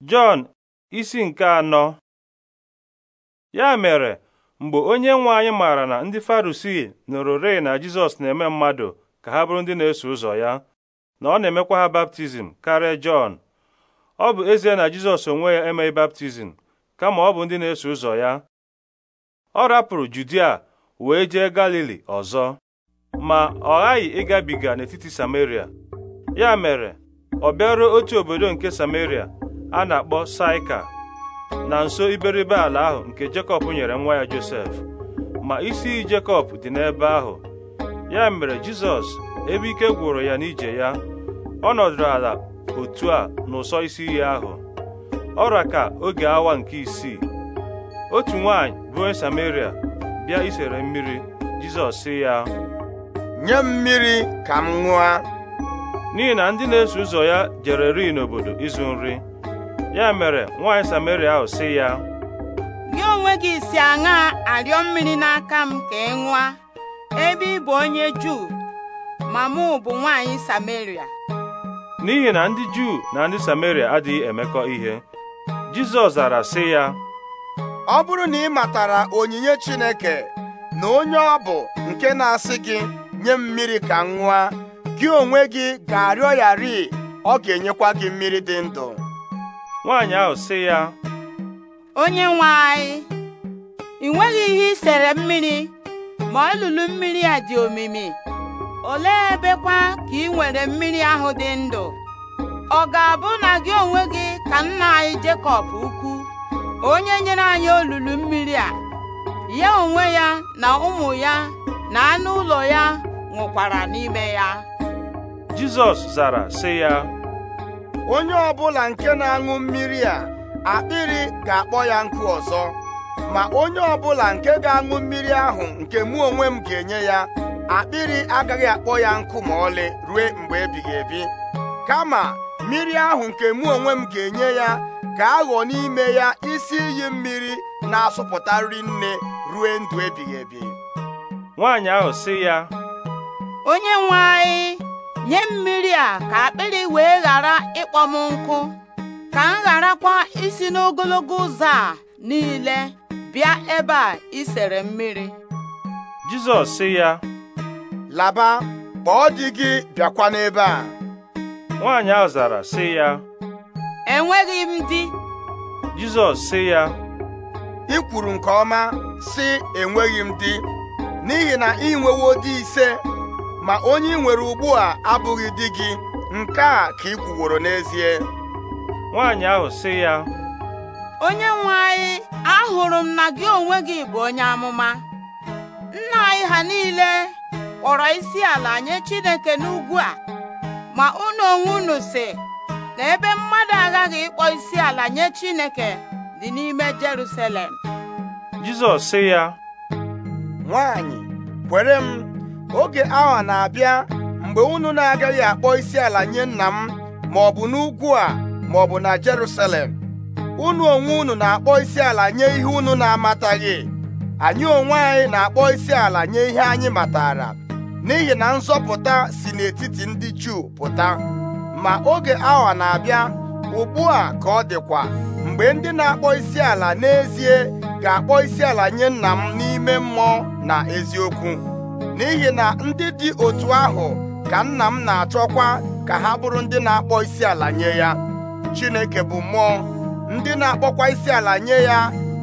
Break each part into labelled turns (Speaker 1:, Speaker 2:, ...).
Speaker 1: Jọn isi nke anọ ya mere mgbe onye nwe anyị maara na ndị Farisii nụrụ rịị na Jizọs na-eme mmadụ ka ha bụrụ ndị na-eso ụzọ ya na ọ na-emekwa ha baptizim karịa Jọn ọ bụ ezie na Jizọs onwe ya emeghị baptizim kama ọ bụ ndị na-eso ụzọ ya ọ rapụrụ Judia wee jee Galili ọzọ ma ọ ghaghị ịgabiga n'etiti Samaria ya mere ọ bịaruo otu obodo nke Samaria a na-akpọ saika na nso iberibe ala ahụ nke Jekọb nyere nwa ya Josef ma isi iyi Jekọb dị n'ebe ahụ ya mere Jizọs ebe ike gwụrụ ya n'ije ya ọ nọdụrụ ala otu a n'ụsọ isi iyi ahụ ọra ka oge awa nke isii otu nwaanyị bụ onye Samaria bịa isere mmiri Jizọs sị ya nye mmiri ka m ṅụa n'ihi na ndị na-eso ụzọ ya jere ri n'obodo ịzụ nri ya mere nwaanyị Samaria ahụ sị ya
Speaker 2: gị onwe gị si aṅa arịọ mmiri n'aka m ka ị ṅụa ebe ị bụ onye Juu ma mụ bụ nwaanyị Samaria
Speaker 1: n'ihi na ndị Juu na ndị Samaria adịghị emekọ ihe Jizọs zara sị ya
Speaker 2: ọ bụrụ na ị matara onyinye
Speaker 3: Chineke na onye ọ bụ nke na-asị gị nye mmiri ka m gị onwe gị ga-arịọ ya ọ ga-enyekwa gị mmiri dị ndụ
Speaker 1: nwaanyị ahụ sị ya
Speaker 2: onye nwe anyị ị nweghị ihe i sere mmiri ma olulu mmiri a dị omimi olee ebekwa ka ị nwere mmiri ahụ dị ndụ ọ ga-abụ na gị onwe gị ka nna anyị Jekọb ukwu onye nyere anyị olulu mmiri a ya onwe ya na ụmụ ya na anụ ụlọ ya nwụkwara n'ime ya
Speaker 1: Jizọs zara sị ya
Speaker 3: onye ọ
Speaker 2: bụla nke na-aṅụ
Speaker 3: mmiri a akpịrị ga-akpọ ya nkụ ọzọ ma onye ọ bụla nke ga-aṅụ mmiri ahụ nke mụ onwe m ga-enye ya akpịrị agaghị akpọ ya nkụ ma ọlị rue mgbe ebighị ebi kama mmiri ahụ nke mụ onwe m ga-enye ya ga-aghọ n'ime ya isi iyi mmiri na-asụpụta nri nne
Speaker 1: rue ndụ ebighị ebi nwaanyị ahụ sị ya
Speaker 2: onye nwe anyị nye mmiri a ka akpịrị wee ghara ịkpọ m nkụ ka m gharakwa isi n'ogologo ụzọ a niile bịa ebe a isere mmiri
Speaker 1: Jizọs sị ya laba kpọọ di gị bịakwa n'ebe a nwaanyị ahụ zara sị ya
Speaker 2: enweghị m di
Speaker 1: Jizọs sị ya ị kwuru nke ọma sị
Speaker 3: enweghị m di n'ihi na ị nwewo di ise ma onye ị nwere ugbu a abụghị di gị nke a ka ị kwuworo n'ezie nwaanyị
Speaker 1: ahụ sị ya
Speaker 2: onye nwe anyị ahụrụ m na gị onwe gị bụ onye amụma nna anyị ha niile kpọrọ isi ala nye Chineke n'ugwu a ma unu onwe unu si na ebe mmadụ aghaghị ịkpọ isi ala nye Chineke dị n'ime Jerusalem
Speaker 1: Jizọs sị ya
Speaker 2: nwaanyị
Speaker 3: kwere m oge awa na-abịa mgbe unu na-agaghị akpọ isi ala nye nna m ma ọ bụ n'ugwu a ma ọ bụ na Jerusalem unu onwe unu na-akpọ isi ala nye ihe unu na-amataghị anyị onwe anyị na-akpọ isi ala nye ihe anyị matara n'ihi na nzọpụta si n'etiti ndị Juu pụta ma oge awa na-abịa ugbu a ka ọ dịkwa mgbe ndị na-akpọ isi ala n'ezie ga-akpọ isi ala nye nna m n'ime mmụọ na eziokwu n'ihi na ndị dị otu ahụ ka nna m na-achọkwa ka ha bụrụ ndị na-akpọ isi ala nye ya Chineke bụ mmụọ ndị na-akpọkwa isi ala nye ya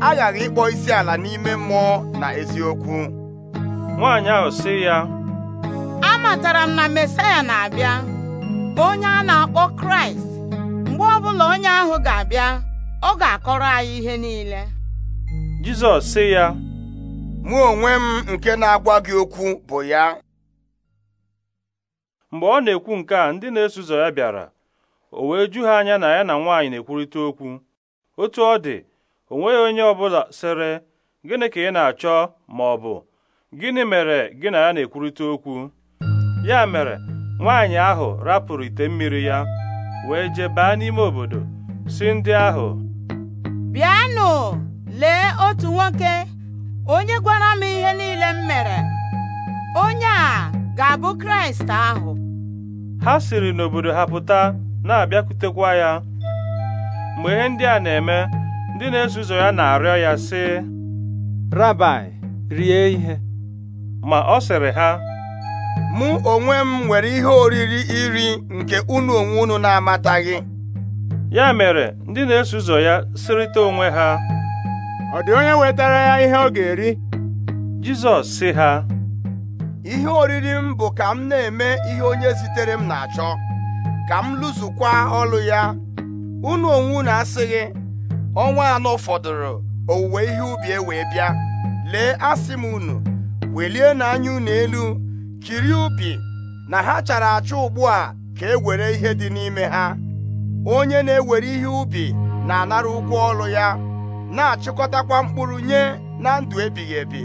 Speaker 3: aghaghị ịkpọ isi ala n'ime mmụọ
Speaker 1: na eziokwu nwaanyị ahụ sị ya
Speaker 2: amatara m na Mesaya na-abịa onye a na-akpọ Kraịst mgbe ọbụla onye ahụ ga-abịa ọ ga-akọrọ anyị ihe niile
Speaker 1: Jizọs sị ya mụ onwe m nke na-agwa gị okwu bụ ya mgbe ọ na-ekwu nke a ndị na-eso ụzọ ya bịara o wee ju ha anya na ya na nwaanyị na-ekwurịta okwu otu ọ dị o nweghị onye ọbụla sịrị gịnị ka ị na-achọ ma ọ bụ gịnị mere gị na ya na-ekwurịta okwu ya mere nwaanyị ahụ rapụrụ ite mmiri ya wee jee baa n'ime obodo si ndị ahụ
Speaker 2: bịanụ lee otu nwoke onye gwara m ihe niile m mere onye a ga-abụ kraịst ahụ
Speaker 1: ha siri n'obodo ha pụta na-abịakwutekwa ya mgbe ihe ndị a na-eme ndị na-eso ụzọ ya na-arịọ ya sị rabai rie ihe ma ọ sịrị ha mụ onwe m nwere
Speaker 3: ihe oriri iri nke unu onwe unu na-amataghị ya mere
Speaker 1: ndị na-eso ụzọ ya sịrịta onwe ha ọ dị onye wetara ya ihe ọ ga-eri Jizọs sị ha ihe oriri m bụ ka m na-eme ihe
Speaker 3: onye zitere m na-achọ ka m lụzukwa ọlụ ya unu onwe unu asịghị ọnwa anọ fọdụrụ owuwe ihe ubi e wee bịa lee asị m unu welie na unu elu kiri ubi na ha chara achọ ugbu a ka e were ihe dị n'ime ha onye na-ewere ihe ubi na-anara ụgwọ ọlụ ya na-achịkọtakwa mkpụrụ nye na ndụ ebighị ebi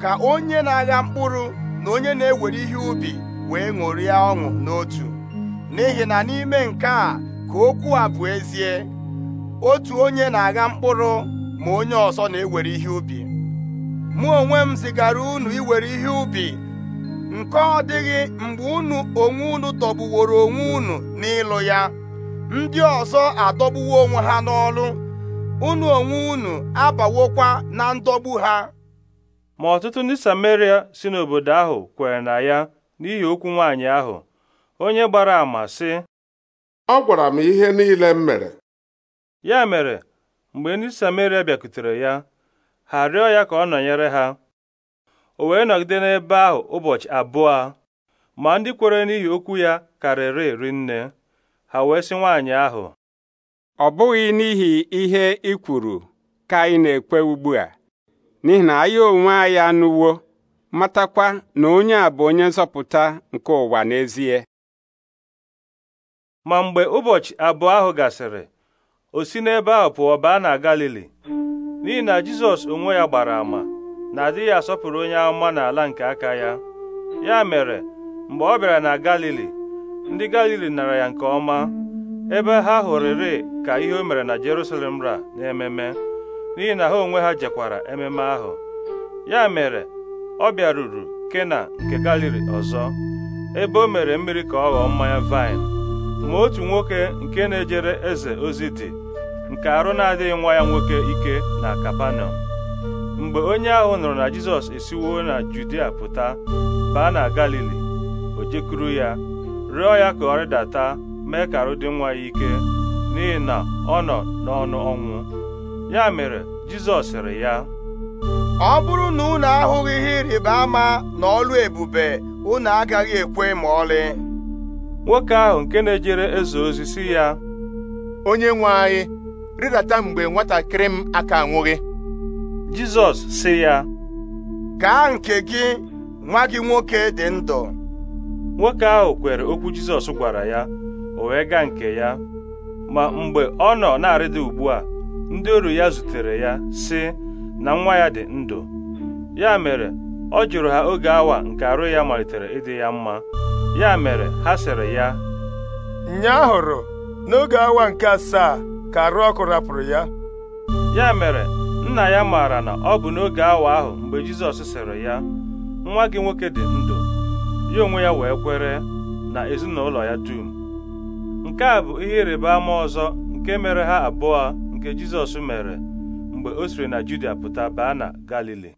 Speaker 3: ka onye na-agha mkpụrụ na onye na-ewere ihe ubi wee ṅụrịa ọṅụ n'otu n'ihi na n'ime nke a ka okwu a bụ ezie otu onye na-agha mkpụrụ ma onye ọzọ na-ewere ihe ubi mụ onwe m zigara unu iwere ihe ubi nke ọ dịghị mgbe unu onwe unu tọgbuworo onwe unu n'ịlụ ya ndị ọzọ adọgbuwo onwe ha n'ọlụ unu onwe unu abawokwa na ndọgbu ha
Speaker 1: ma ọtụtụ ndị Sameria si n'obodo ahụ kwere na ya n'ihi okwu nwaanyị ahụ onye gbara ama sị ọ gwara m ihe niile m mere ya mere mgbe ndị Sameria bịakutere ya ha rịọ ya ka ọ nọnyere ha o wee nọgide n'ebe ahụ ụbọchị abụọ ma ndị kwere n'ihi okwu ya karịrị nne ha wee sị nwaanyị ahụ ọ bụghị n'ihi ihe ị kwuru ka anyị na-ekwe ugbu a n'ihi na anyị onwe anyị anụwo matakwa na onye a bụ onye nzọpụta nke ụwa n'ezie ma mgbe ụbọchị abụọ ahụ gasịrị o si n'ebe ahụ pụọ baa na Galili n'ihi na Jizọs onwe ya gbara ama na adịghị asọpụrụ onye amụma n'ala nke aka ya ya mere mgbe ọ bịara na Galili ndị Galili nara ya nke ọma ebe ha hụrịrị ka ihe o mere na Jerusalem ra n'ememe n'ihi na ha onwe ha jekwara ememe ahụ ya mere ọ bịaruru Kena nke Galili ọzọ ebe o mere mmiri ka ọ ghọọ mmanya vaịn ma otu nwoke nke na-ejere eze ozi dị nke arụ na-adịghị nwa ya nwoke ike na Kapanọm mgbe onye ahụ nụrụ na Jizọs esiwo na Judia pụta baa na Galili o jekwuru ya rịọ ya ka ọ rịdata mee ka arụ dị nwa ya ike n'ihi na ọ nọ n'ọnụ ọnwụ ya mere Jizọs sịrị ya ọ
Speaker 3: bụrụ na unu ahụghị ihe ịrịba ama na ọlụ ebube unu agaghị ekwe ma ọlị
Speaker 1: nwoke ahụ nke na-ejere eze ozi si ya onye nwe anyị rịdata mgbe nwatakịrị m aka nwụghị. Jizọs si ya gaa nke gị nwa gị nwoke dị ndụ nwoke ahụ kwere okwu Jizọs gwara ya wee gaa nke ya ma mgbe ọ nọ na-arịda ugbu a ndị oru ya zutere ya si na nwa ya dị ndụ ya mere ọ jụrụ ha oge awa nke arụ ya malitere ịdị ya mma ya mere ha sịrị ya hụrụ n'oge awa nke asaa ka arụ ọkụ rapụrụ ya ya mere nna ya maara na ọ bụ n'oge awa ahụ mgbe Jizọs sịrị ya nwa gị nwoke dị ndụ ya onwe ya wee kwere na ezinụlọ ya dum nke a bụ ihe ịrịba ama ọzọ nke mere ha abụọ nke Jizọs mere mgbe o siri na Judia pụta baa na Galili